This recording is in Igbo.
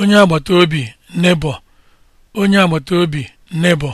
onye agbata obi nebọ onye agbata obi nebọ